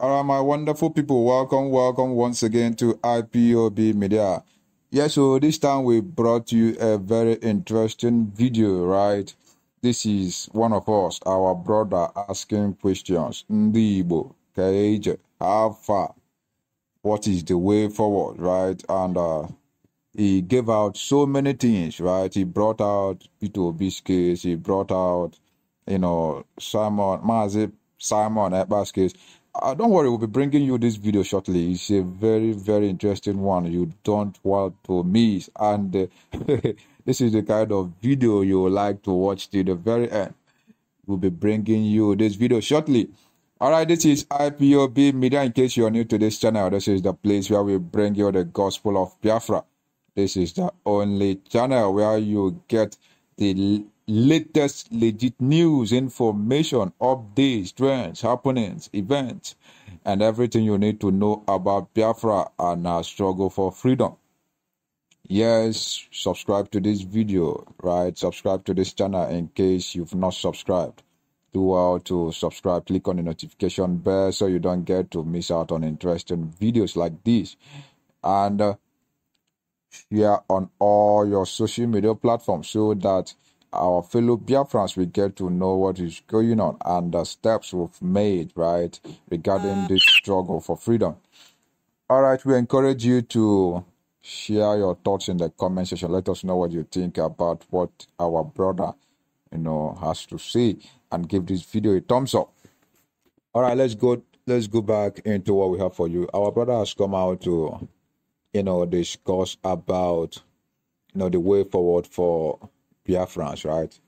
All right, my wonderful people, welcome, welcome once again to IPOB Media. Yes, so this time we brought you a very interesting video, right? This is one of us, our brother, asking questions. Ndibo, Kaeje, how far? What is the way forward, right? And uh, he gave out so many things, right? He brought out Peter Biscuits, he brought out, you know, Simon, Mazip, Simon Ebba's case uh, don't worry, we'll be bringing you this video shortly. It's a very, very interesting one. You don't want to miss. And uh, this is the kind of video you like to watch till the very end. We'll be bringing you this video shortly. All right, this is IPOB Media. In case you're new to this channel, this is the place where we bring you the gospel of Biafra. This is the only channel where you get the latest legit news, information, updates, trends, happenings, events, and everything you need to know about Biafra and our struggle for freedom. Yes, subscribe to this video, right? Subscribe to this channel in case you've not subscribed. Do how to subscribe, click on the notification bell so you don't get to miss out on interesting videos like this. And uh, share on all your social media platforms so that our fellow Biafrans will get to know what is going on and the steps we've made, right, regarding this struggle for freedom. All right, we encourage you to share your thoughts in the comment section. Let us know what you think about what our brother, you know, has to say, and give this video a thumbs up. All right, let's go. Let's go back into what we have for you. Our brother has come out to, you know, discuss about, you know, the way forward for France, right?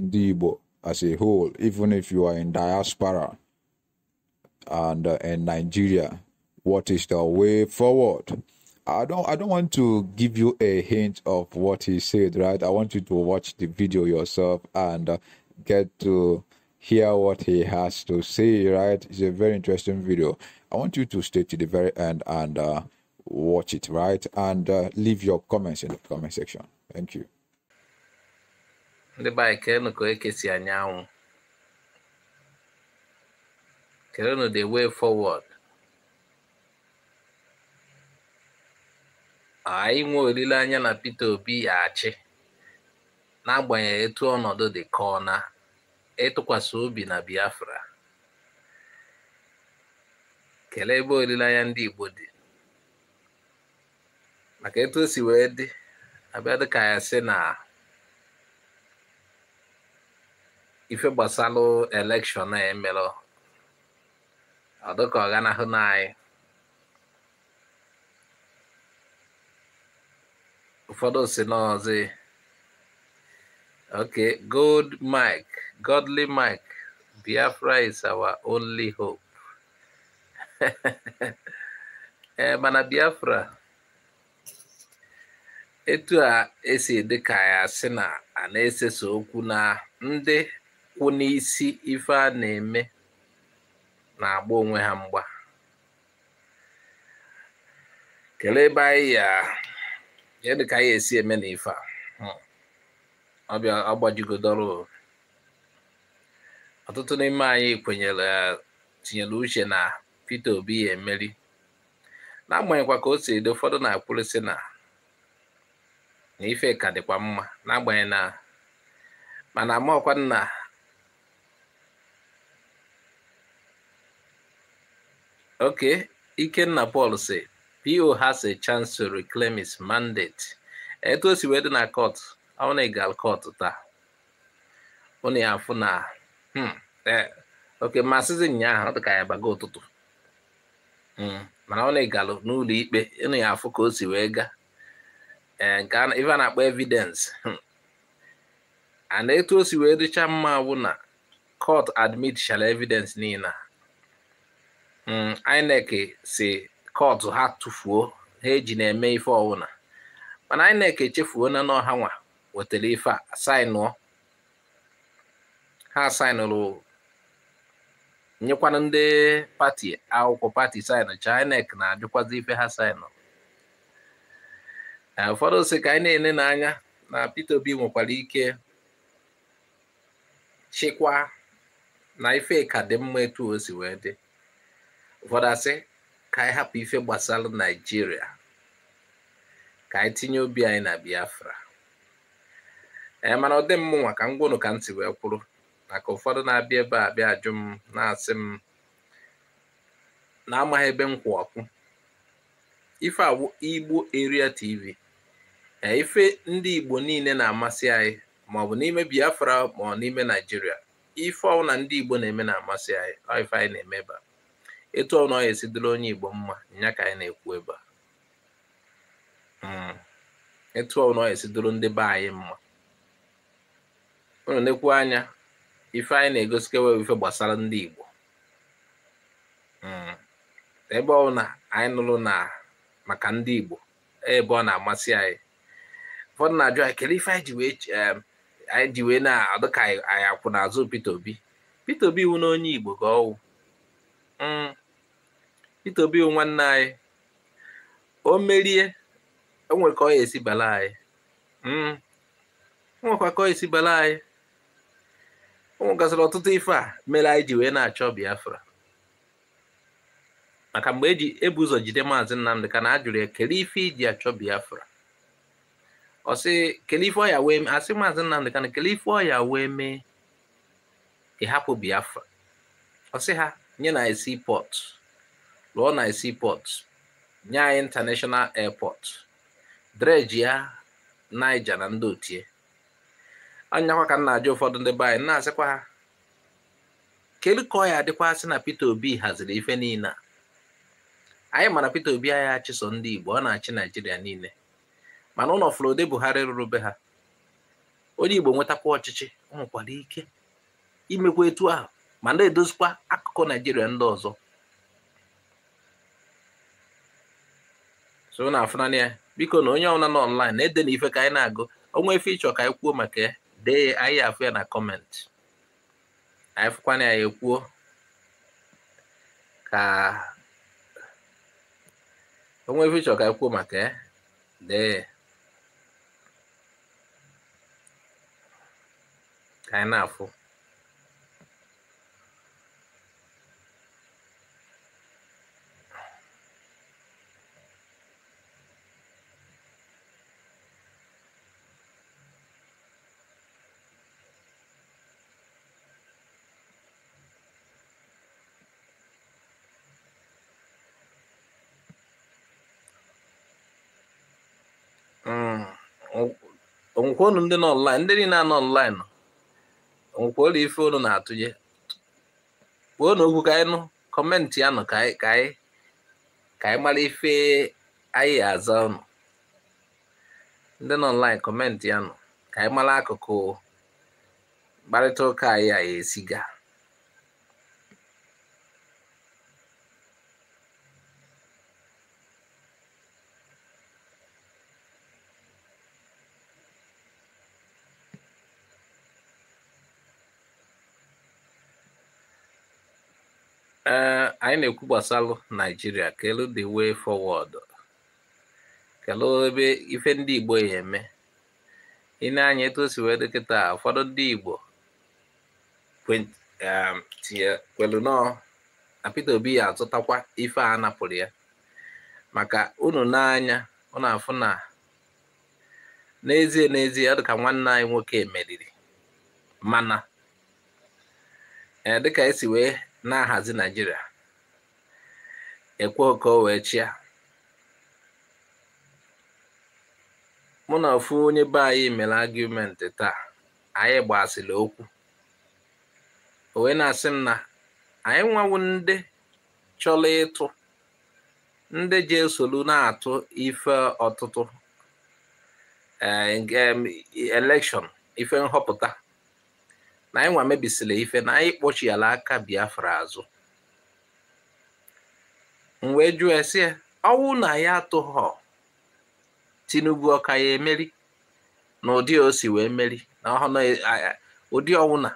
Dibo as a whole, even if you are in diaspora and uh, in Nigeria, what is the way forward? I don't I don't want to give you a hint of what he said, right? I want you to watch the video yourself and uh, get to hear what he has to say, right? It's a very interesting video. I want you to stay to the very end and uh, watch it, right? And uh, leave your comments in the comment section. Thank you. ndị be anyị kelenụ ka eke si anya anwụ kelenụ the way forward anyị nwee olileanya na Peter Obi achị n'agbanyeghị etu ọnọdụ dị ka ọ na ịtụkwasị obi na Biafra kelee ebe olileanya ndị Igbo dị maka etu o si wee dị abịa dịka ya si na ife gbasalụ elekshọn a emelụ ọ ka ọ n'anyị ụfọdụ si n'ọzi oke gold mike godly mike biafra is our only hope ee eh, mana biafra etu a esi dị ka ya si na a na-eseso okwu na ndị ịkwụ n'isi ife a na-eme na-agba onwe ha mgba kelee ebe anyị ya kedu ka anyị esi eme na ife a hmm. ọbịa ọtụtụ n'ime anyị kwenyere tinyere uche na Peter Obi ya emeri n'agbanyeghịkwa ka o si edo ụfọdụ na-akwụrịsị na na ife ka dịkwa mma n'agbanyeghị na mana Ok, Ikenna Paul say PO has a chance to reclaim his mandate. Etu o si wee dị na court, ọ na-egal court taa. Ọ na-afụ na hmm, eh, oke masịzi nyaahụ ọ dị ka ya baga ụtụtụ. Hmm, mana ọ na-egalụ n'ụlọ ikpe, ị na-afụ ka o si wee gaa. Eh, nke ife a na-akpọ evidence. Hmm. And etu o si wee dịcha mma bụ na court admit shala evidence niile Mm, INEC si kọtụ ha tụfuo ha eji na-eme ife ọwụna mana INEC echefuo na n'ọha nwa wetara ife a sainụọ ha sainụrụ nyekwana ndị pati akwụkwọ pati cha, INEC na-ajụkwazi ife ha sainụrụ eh, ụfọdụ si ka anyị na enye n'anya na Peter Obi nwekwara ike chịkwa na ife ka dị mma etu o wee dị ụfọdụ asị ka anyị hapụ ife gbasara naijiria ka anyị tinye obi anyị na biafra ee mana ọ dị m nwa ka ngwụnụ ka ntị wee kwụrụ maka ụfọdụ na-abịa ebe a bịa ajụ m na-asị m na-amaghị ebe m kwụ ọkụ ife awụ igbo area tv ee ife ndị igbo niile na-amasị anyị maọbụ n'ime biafra ma ọ n'ime naijiria ife ọwụ na ndị igbo na-eme na-amasị anyị ife anyị na eme a. etu ọ nọghị esidoro onye Igbo mma ya ka anyị na-ekwu ebe a hmm. etu ọ nọghị esidoro ndị be anyị mma unu nekwu anya ife anyị na-egosikewe ife gbasara ndị Igbo hmm. ebe ọ na anyị nụrụ na maka ndị Igbo ebe ọ na-amasị anyị ụfọdụ na-ajụ anyị kedu ife anyị ji wee anyị ji na-adụ anyị akwụ n'azụ Peter Obi Peter Obi wụ na Igbo ga ọwụ hmm. Peter Obi nwanne anyị o merie enwere ka ọ ya esi bala anyị hmm. nwekwa ka ọ esi bala anyị o nwegasịrị ọtụtụ ife a mere anyị ji wee na-achọ Biafra maka mgbe eji ebu ụzọ jide maazị Nnamdị ka na ajụrụ ya kelee ife iji achọ Biafra ọsị sị kelee ife ọya wee mee asị maazị Nnamdị ka na kelee ife ọya wee mee ịhapụ Biafra ọsị ha nye na esi pọtụ lụọ na seaport nye anyị international airport dreji ya naija na ndị otie anyakwa ka m na-ajụ ụfọdụ ndị be anyị na-asịkwa ha kedu ka ọ ya adịkwa na Peter Obi haziri ife niile a anyị mana Peter Obi anyị achịso ndị Igbo ọ na-achị Naijiria niile mana ụlọ Flode Buhari rụrụ be ha onye Igbo nwetakwa ọchịchị ọ nwekwara ike imekwa etu ahụ ma na-edozikwa akụkụ Naijiria ndị ọzọ so na afụna ya biko na onye ọbụla nọ online na-ede na ife ka anyị na-agụ onwe ife ịchọ ka anyị kwuo maka ya dee anyị afụ ya na kọmentị anyị fụkwana ya ekwuo ka onwe ife ịchọ ka anyị kwuo maka ya dee ka anyị na-afụ onwekwa unu ndị nọ ndị niile anọ online onwekwa ụlọ ife unu na-atụnye kwuo na okwu ka anyị nụ kọmentị ya nụ ka anyị ka mara ife anyị aza unu ndị nọ kọmentị ya nụ ka anyị mara akụkụ mkparịta ụka anyị a gaa. anyị na-ekwu gbasalụ naijiria kelu the way forward kelu ebe ife ndị igbo ya eme ịna-anya etu o si wee dịkịta ụfọdụ ndị igbo um, kwelu nọọ na Peter Obi ya azụtakwa ife a napụrụ ya maka unu n'anya unu afụ na n'ezie n'ezie ọ dịka nwanne anyị nwoke meriri mana e, dịka esi wee na-ahazi naijiria ekwe ka o wee chịa mụ na ofu onye be anyị mere agụmenti taa anyị gbasiri okwu o na-asị m na anyị nwawu ndị chọrọ ịtụ ndị ji esolu na-atụ ife ọtụtụ eh, elekshọn ife nhọpụta na anyị nwa mebisila ife na anyị kpọchiala aka biafra azụ m wee jụọ esi ya ọnwụ na ya atụghọ tinubu ọka ya emeri na ụdị osi wee meri na ụdị ọnwụ na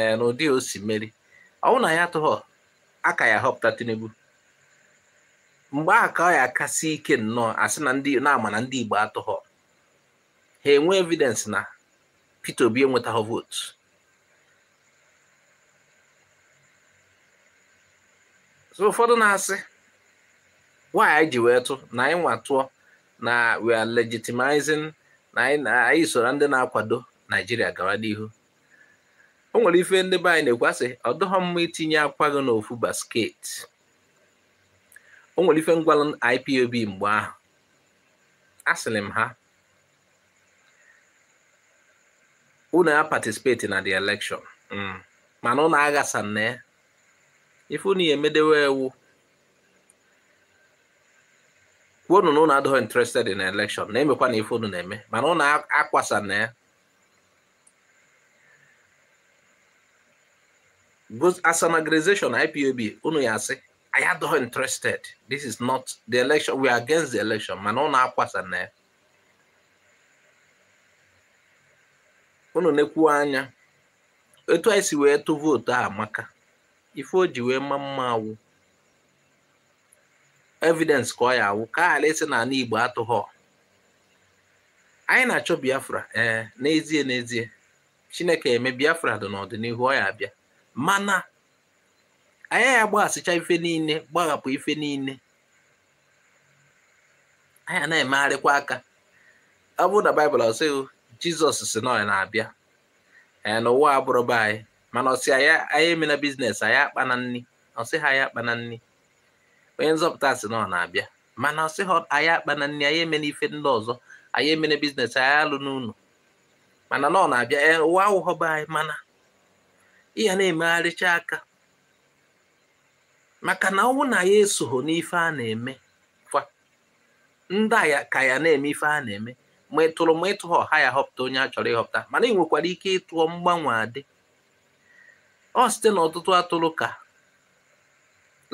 e, na ụdị osi meri ọnwụ na ya atụghọ aka ya họpụta tinubu mgbe a ka ọ ya akasị ike nnọọ asị na ndị na-ama na ndị igbo atụghọ ha enwee evidence na peter obi enwetaghị vootu so ụfọdụ na-asị nwaanyị ji wee tụ na anyị nwa na we are legitimizing na anyị soro ndị na-akwado naijiria gawa n'ihu o nwere ife ndị be anyị na-ekwasị ọ dịghọ mma itinye akwa gị n'ofu basket o nwere ife ngwalụ IPOB mgbe ahụ asịrị m ha unu ya patisipeti na the election mm. mana ụnụ aghasa na ifu na emedewe ewu kwuonu na ụnụ adịghị interested in election na-emekwa na ifu unu na-eme mana ụnụ akwasa na ya as an organization IPOB unu ya asị "I adịghị interested this is not the election we are against the election mana ụnụ akwasa na ya unu na-ekwu anya etu anyị si wee tụ vootu a amaka ife o ji wee mma mma awụ evidence ka ọ ya awụ ka ala esi na ala Igbo atụghọ anyị na-achọ Biafra ee eh, n'ezie n'ezie Chineke eme Biafra dị n'ọdịnihu ọ ya abịa mana anyị ya gbaghasịcha ife niile gbaghapụ ife niile anyị na-emegharịkwa aka ọ bụrụ na Baịbụl ọsịghị Jizọs si na na-abịa ee n'ụwa be anyị mana ọsị anyị emena biznes akpa na nri ọsị ha anyị akpa na nri onye nzọpụta sị na ọ na-abịa mana ọsị ha akpa na nri anyị emena ife ndị ọzọ anyị emena biznes anya alụ n'ụlọ mana na ọ na-abịa e, ụwa awụghọba anyị mana ịya na-emegharịcha aka maka na ọnwụ na ya esogho n'ife a na-eme kwa ndị ya ka ya na-eme ife a na-eme ma ịtụrụ ma ịtụghọ ha ya họpụta onye a chọrọ ịhọpụta mana ị nwekwara ike ịtụọ mgbanwe adị ọ site n'ọtụtụ atụrụ ka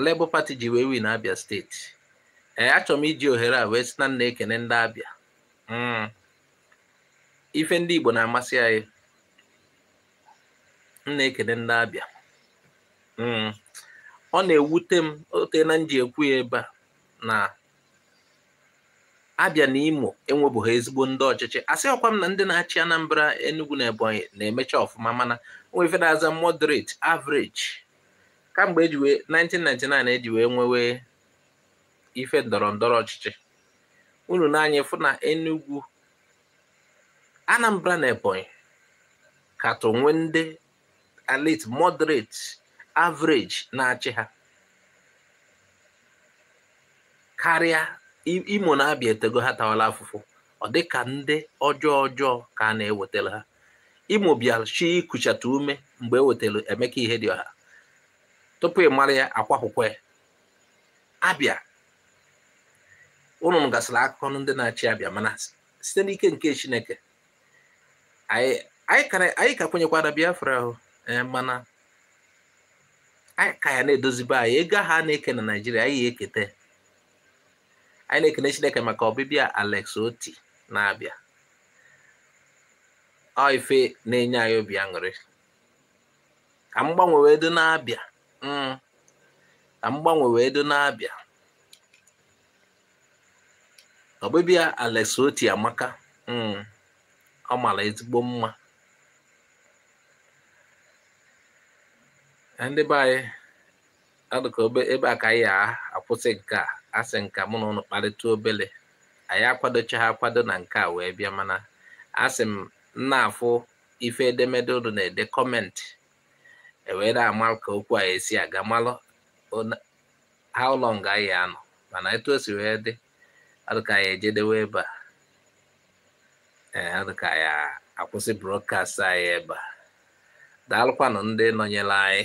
Labour Party ji wee win Abia steeti ee achọrọ m iji ohere a wee si na nna ekene ndị Abia mm. ife ndị Igbo na-amasị anyị nna ekene ndị Abia mm. ọ na-ewute m ote na nje ekwu ya ebe a na abịa na imo enwebụghị ezigbo ndị ọchịchị asị na ndị na-achị anambra enugu na ebonyi na-emecha ọfụma mana nwefere aza moderate average kamgbe ejiwe 1999 eji wee nwewe ife ndọrọ ndọrọ ọchịchị unu n'anya fụ na enugu anambra na ebonyi katọ ndi ndị elite moderate average na-achị ha karịa imo na abịa etego ha tawala afụfụ ọ dị ka ndị ọjọọ ọjọọ ka a na-ewetara ha imo bịa chi ikuchata ume mgbe e wetara emeka ihe dị ọha tupu ị mara ya akwapụkwa ya abịa unu gasịrị akụkọ ndị na-achị abịa mana site n'ike nke chineke anyị ka kwenyekwara biafra ahụ eh, mana anyị ka ya na-edozibe anyị ego ha na-eke na naijiria anyị ya eketa anyị na-ekene chineke maka ọbịbịa alex oti na-abịa ọ ife na-enye anyị obi aṅụrị ka m gbanwe wee dị na-abịa mm. ka m gbanwe wee dị na-abịa ọbịbịa alex oti amaka mm, ọ mara ezigbo mma ndị be anyị adụka ebe a ka anyị akwụsị nke a asị nka mụ na ụnụ kparịta obele anyị akwadocha ha akwado na nke a wee bịa mana asị m na afụ ife edemede ụnụ na-ede kọmentị ewee na-ama ka okwu a esi aga malụ how long anyị anọ mana etu o si wee dị adịka anyị ejedewe ebe a ee eh, adịka anyị akwụsị brọdkast anyị ebe a daalụkwanụ ndị nọnyere anyị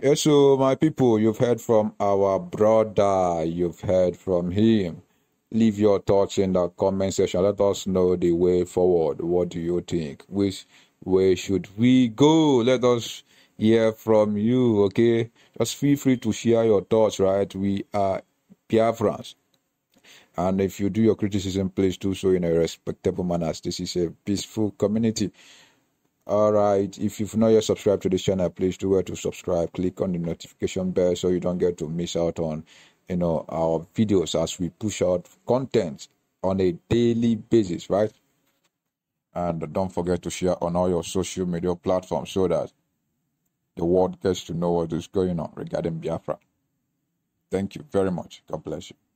Eh, so my people, you've heard from our brother, you've heard from him. Leave your thoughts in the comment section. Let us know the way forward. What do you think? Which way should we go? Let us hear from you, okay? Just feel free to share your thoughts, right? We are France, And if you do your criticism, please do so in a respectable manner. This is a peaceful community all right if you've not yet subscribed to this channel please do well to subscribe click on the notification bell so you don't get to miss out on you know our videos as we push out content on a daily basis right and don't forget to share on all your social media platforms so that the world gets to know what is going on regarding biafra thank you very much god bless you